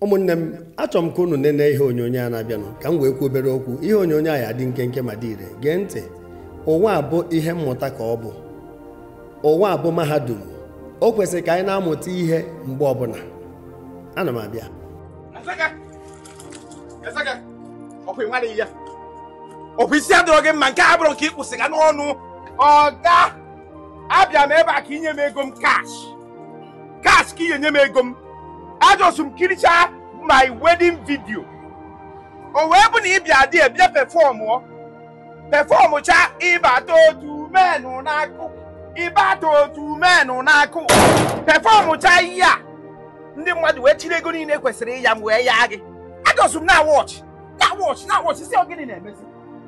ụmụnne m achọrọ m ka unu nene ihe onyonyo a na-abịanụ ka m wee kwuo obere okwu ihe onyonyo a ya adị nke ma dị ire gee ntị ụwa abụ ihe mmụta ka ọ bụ ụwa abụ mahadum o kwesịrị ka anyị na-amụta ihe mgbe ọbụla ana m abịa ọkwa isi adịrọ gị mma nke a bụrụ ka ị kwụsịga n'ọnụ ọ ga abịa m ebe a ka inye m ego m kash kash ka inye nye m ego m ajọsụ m kiricha my wedding video o wee bụ na ị bịa dị ebie pefọmụ pefọmụ ịbata otu menụ n'akụ ịbata otu menụ n'akụ pefọmụ cha ihe a ndị mmadụ wee chiri ego niile kwesịrị ịya m wee yaa gị ajọsụ m na wọchị na wọchị na wọchị si ogịnị na-emezi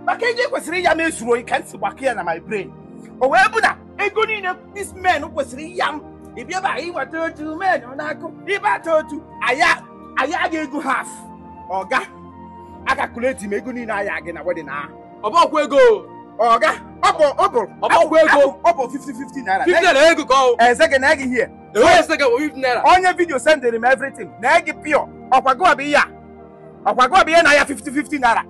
maka ego kwesịrị ịya m ezuru oyi ka m si gbakọ ya na my brain o wee bụ na ego niile this men kwesịrị ịya m ị bịaba ịweta otu men n'akụ ịbata otu anyị aga ego haf ọga agakuleti m niile aya gị na wedin ahụ ọbọkwa ego ọga ọbọkwa ego ọ bụ 50-50 naira ka ọ eze gị na-ege ihe onye vidio sendịrị m evritin na-ege pịọ ihe bụ ihe na ya 50 naira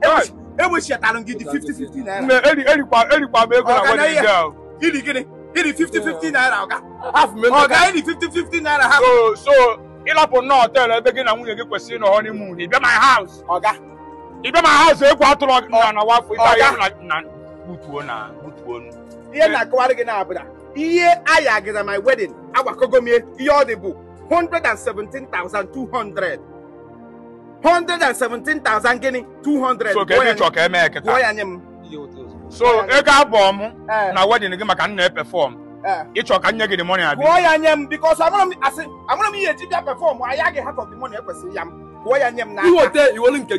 gị dị 50 naira erikwa m ego na yìí ni fifty fifty naira ọ̀gá. half mi ọ̀gá yìí ni fifty fifty naira half. so so ịlapụ nnọọ họteelụ ebe gị na nwunye gị kwesịrị ịnọ honeymoon Ibe my house. Oga. Ibe my house ekwu atụrụ na na wafọ ibe anyị na gbutuo na gbutuo nu. ihe na-akọwara gị na-abụda ihe aya gị na my wedding agwakogo m ihe ọ dị bụ thousand 117,200 gịnị 200 so ka ebe chọ ka eme eketa gụọ ya nye m so ego abụọ m eh. na wedịn gị maka nna epefọm eh. ịchọ ka nye gị dị mọni abịa ya nye m amụrụ m ihe eji bịa pefọm gị ekwesịrị ya m kwụọ ya nye m na nke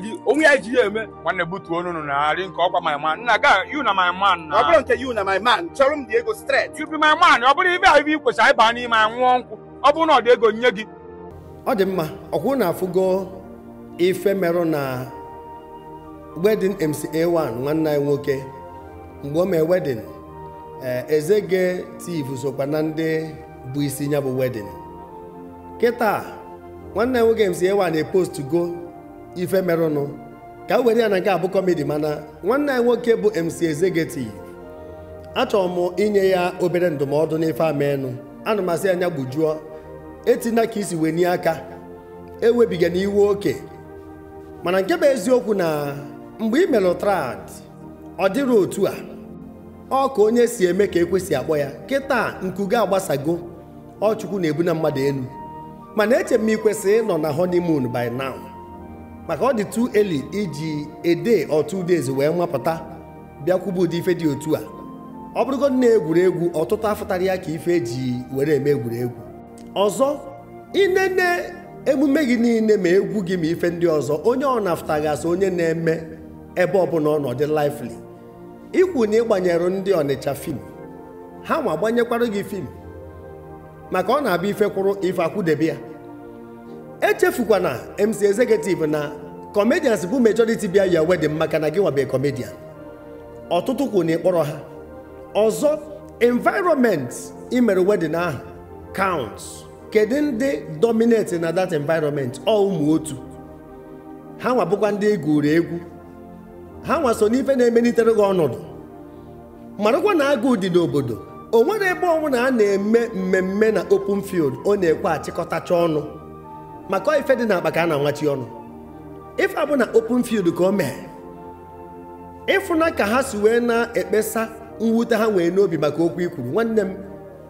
gị onwe ya ji ya eme nwanne butuo onunu na arị nke ọkwa my nna ga you na my na ọ bụrụ nke you na my man chọrọ m dị ego stret you be my ọ bụrụ ibe ahụ ibe anyị baa n'ime anwụọ nkwụ ọ bụrụ na ọ dị ego nye gị ọ mca1 nwanne nwoke mgbe o mee wedin eh, Ezege Tiv sokwa na ndị bụ isi ya bụ wedin kịta nwanne m nwoke MC Ewa na-epost go ife merụnụ ka a were ya na nke abụ kọmedi mana nwanne anyị nwoke bụ MC Ezege Tiv achọrọ m inye ya obere ndụmọdụ n'ife amenụ ana m asị anya gbujuo etina ka isi wee nye aka ewebiga iwu oke mana nke bụ eziokwu na mgbe i melụ ọ dịrị otu a ọ ka onye si eme ka ekwesị akpọ ya kịta gị agbasago ọ na-ebu na mmadụ elu mana eche m ikwesị ịnọ na honeymoon by now maka ọ dị tu eli iji ede otu days wee nwapụta bịakwuba ụdị ife dị otu a ọ bụrụgodị na egwuregwu ọtụtụ afụtara ya ka ife ji were eme egwuregwu ọzọ inene emume gị niile ma egwu gị ma ife ndị ọzọ onye ọ na-afụtaghị asị onye na-eme ebe ọbụla ọ nọ dị lively ikwu na ịgbanyere ndị ọnịcha fim ha ma gbanyekwara gị fim maka ọ na-abịa ife ife akwụdebe ya echefukwana MC executive na comedians bụ majority bịa ya wedding maka na gị nwabe comedian ọtụtụ kwụ na ịkpọrọ ha ọzọ environment imere wedịn ahụ kaụnt kedu ndị dominate na that environment ọ ụmụ otu ha nwabụkwa ndị egwuru egwu ha nwa so n'ife na-emelitere gị ọnọdụ marakwa na agụụ dị n'obodo o nwere ebe ọnwụna a na-eme mmemme na open field ọ na-ekwe achịkọtacha ọnụ maka ife dị n'akpa ka a na-anwachi ọnụ ife abụ na open field ka o mee ịfụna ka ha si wee na-ekpesa mwute ha nwee n'obi maka okwu ikwuru nwanne m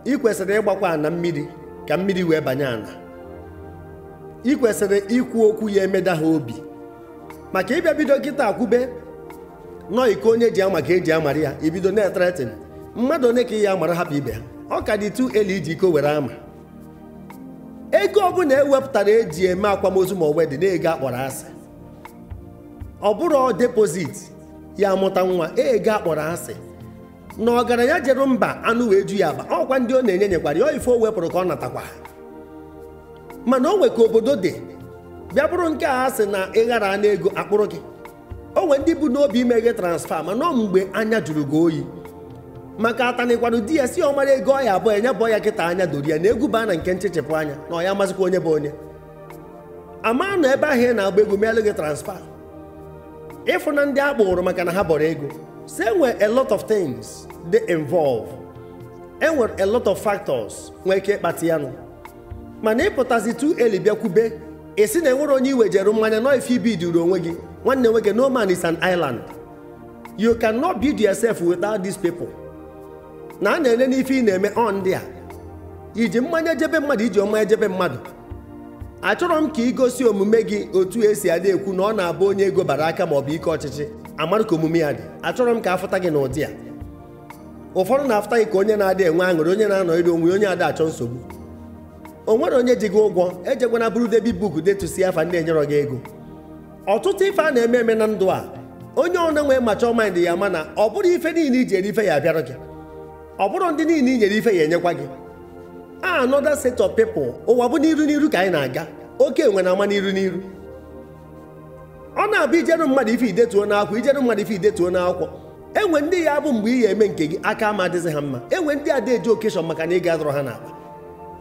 ị kwesịrị ịgbakwa ana mmiri ka mmiri wee banye ana ị kwesịrị ikwu okwu ya emeda ha obi maka ịbịa bido kịta akwụbe. nọọ iko onye ji ama ka eji amara ya ibido na-etretin mmadụ onye ka ị ya amara hapụ ibe ha ọ ka dị tu eli iji iko were ama ego ọbụla ewepụtara eji eme akwamozu ma dị na-ego akpọrọ asị ọ bụrụ depozit ya amụta nwa ego akpọrọ asị na ọgaranya jere mba anụ wee ju ya agba ọkwa ndị ọ na-enye nyekwara ya ife o wepụrụ ka ọ natakwa mana o nwe ka obodo dị bịa bụrụ nke a sị na ịghara anụ ego akpụrụ gị o nwere ndị bụ n'obi imeghe transfa ma nọ mgbe anya juru gị oyi maka atanịkwanụ di ya si mara ego ọya abụọ enye bụ ya kịta anya doro ya na egwu baa na nke nchechepụ anya na ọ ya amazịkwa onye bụ onye ama ebe ahụ ị na-agba egwu meelụ gị transfa ịfụ na ndị a maka na ha bọrọ ego so enwere a lot of things dey involved enwere a lot of factors nwee ike ịkpata ya nụ mana ịpụtazi tu eli ị sị na enwere onye iwejere mmanya nọ ife ibiduru onwe gị nwanne nwoke no man is an island you cannot build yourself without these people na a na-ele n'ife ị na-eme ọ ndị a iji mmanya ejebe mmadụ iji ọma ejebe mmadụ achọrọ m ka i gosi omume gị otu esi adị ekwu na ọ na-abụ onye ego bara aka ma ọ bụ ike ọchịchị amara ka omume ya dị achọrọ m ka afụta gị n'ụdị a ụfọdụ na-afụta gị ka onye na-adị enwe aṅụrị onye na-anọ iri onwe onye ada achọ nsogbu o nwere onye ji gị ụgwọ ejegwana bụrụ debi buku detusi afa ndị enyerọ gị ego ọtụtụ ife a na-eme eme na ndụ a onye ọna nwee macho mind ya mana ọ bụrụ ife niile i ife ya abịara gị ọ bụrụ ndị niile i nyere ife ya enyekwa gị a set of people ụwa bụ n'iru n'iru ka anyị na-aga oke enwe ama n'iru n'iru ọ na-abụ ijeru mmadụ ife idetuo n'akwụkwọ ijere mmadụ ife idetuo n'akwụkwọ enwe ndị ya bụ mgbe ị ya eme nke gị aka ama adịzi ha mma enwe ndị ada eji okeshọn maka na ị ga-adọrọ ha n'akpa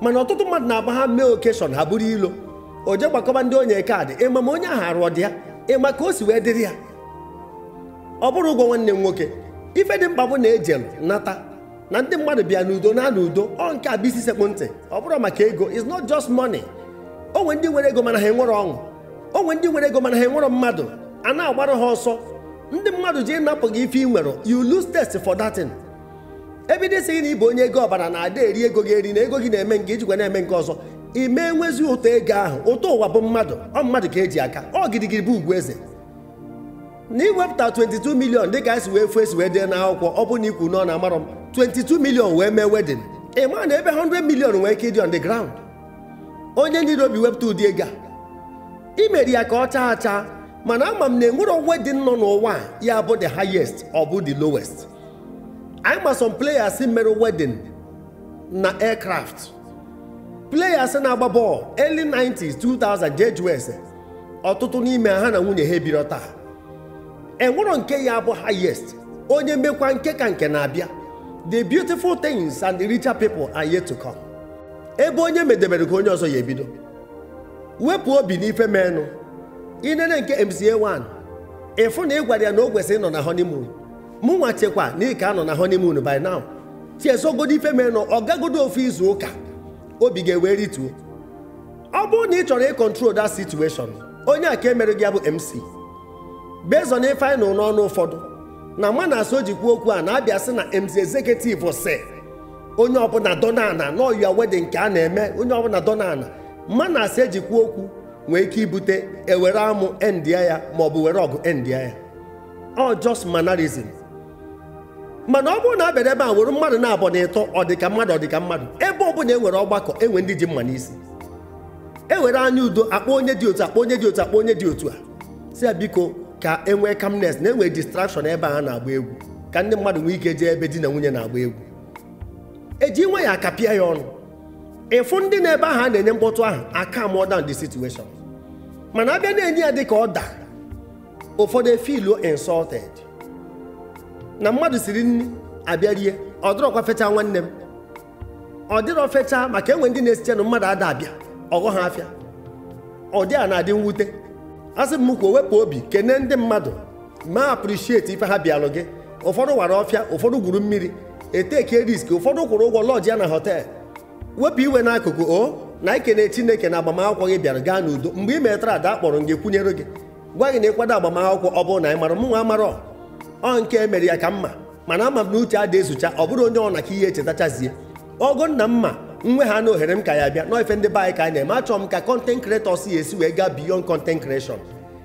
mana ọtụtụ mmadụ na-agba ha mee okeshọn ha bụrụ ilo o je gbakọba ndị onye kaadị ịma ma onye ahụ arụọ dị ya ịma ka o si wee dịrị ya ọ bụrụ ụgwọ nwanne m nwoke ife dị mkpa bụ na ejelu nata na ndị mmadụ bịa n'udo na na udo ọ nke a bụ isi sekpu ntị ọ bụrụ maka ego is not just money onwe ndị nwere ego mana ha enwere ọṅụ onwe ndị nwere ego mana ha enwere mmadụ a na-agbara ha ọsọ ndị mmadụ ji ịnapụ gị ife ị nwere you lose test for that thing ebido isighị na ịbụ onye ego ọbara na ada eri ego gị eri na ego gị na-eme nke ijikwa na-eme nke ọzọ ime enwezi ụtọ ego ahụ ụtọ ụwa bụ mmadụ ọ mmadụ ka eji aka ọ gidigidi bụ ugwu eze na iwepụta 22 milion dịka esi wee fuo esi wee dee n'akwụkwọ ọ bụ na ikwu nọ na amarọ m 22 milion wee mee wedin ị maa na ebe 100 milion nwee ike ịdị on the ground onye niile obi wepụta ụdị ego a imeri ya ka ọ chaa acha mana ama m na enwere wedin nọ n'ụwa ya bụ the highest ọ bụ the lowest anyị ma player players mere wedin na aircraft players na-agba bọọlụ early 90s 2000 George West ọtụtụ n'ime ha na nwunye ha ebiro taa enwero nke ya bụ highest onye mekwa nke ka nke na-abịa the beautiful things and the richer people are yet to come ebe onye medebere ka onye ọzọ ya ebido wepụ obi n'ife menụ inene nke MCA1 ịfụ na ị ya na o kwesịrị ịnọ na honeymoon mụnwa chekwa na ị ka anọ na honeymoon by now tiesogodo ife menụ ọ gagodo ofu izu ụka obi ga-ewe rituo ọ bụrụ na ị chọrọ ịkọntrol that situation onye a ka e mere gị ya bụ MC bezọ na ife anyị n'ọnụ ụfọdụ na mana na oji jikwa okwu a na-abịa sị na MC executive si onye ọbụla dọna ana n'ọyia wedding nke a na-eme onye ọbụla dọna ana mana na asị kwuo okwu nwee ike ibute ewere amụ endia ya maọbụ were ọgụ endia ya ọ just mannerism mana ọ bụrụ na abịara ebe a were mmadụ na-abọ na ịtọ ọdịka mmadụ ọdịka mmadụ ebe ọ bụla enwere ọgbakọ enwe ndị ji mma n'isi ewere anya udo akpọ onye dị otu akpọ onye dị otu akpọ onye dị otu a si ya biko ka enwee kamnes na enwee distraction ebe a na-agba egwu ka ndị mmadụ nwee ike jee ebe di na nwunye na-agba egwu eji nwa ya akapịa ya ọnụ ịfụ ndị na-ebe ahụ a na-enye mkpọtụ ahụ aka mụọ down the situation mana abịa na-enye ya dị ka ọ da ụfọdụ efiluo insọted na mmadụ siri nri abịa rie ọ dịrọkwa fecha nwanne m ọ dịrọ fecha maka enwe ndị na-esiche na mmadụ ada abịa ọghọ ha afịa ọ dị a na-adị mwute asị m kwuo wepụ obi kene ndị mmadụ ma aprịshieti ife ha bịalụ gị ụfọdụ wara ọfịa ụfọdụ gwuru mmiri eteke riski ụfọdụ kwụrụ ụgwọ lọji ya na họtel wepụ iwe n'akụkụ o oh, na ikene chineke na agbamakwụkwọ gị bịara gaa n'udo mgbe ị metara ada akpọrọ gị kwunyere gị gwa gị na ịkwado agbamakwụkwọ ọ bụrụ na ị mara mụnwa amarọ ọ nke mere ya ka mma mana ama m na uche adị esocha ọ bụrụ onye ọ na ka ihe echetachazie ọgụ nna mma nwe ha na ohere m ka ya bịa na ife ndị be ka anyị na-eme achọrọ m ka content creators ya esi wee gaa beyond content creation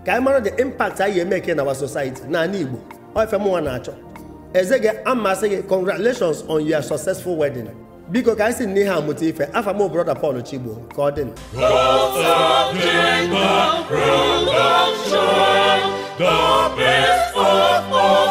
ka anyị mara the impact anyị emeke na our society n'ala Igbo ife mụnwa na-achọ eze gị amasị gị congratulations on your successful wedding biko ka anyị si n'ihe amụta ife afa m brother Paul Chigbo ka ọ dị The